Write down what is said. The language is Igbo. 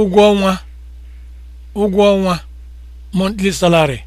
ụgwọ ọnwa ụgwọ ọnwa monthly salary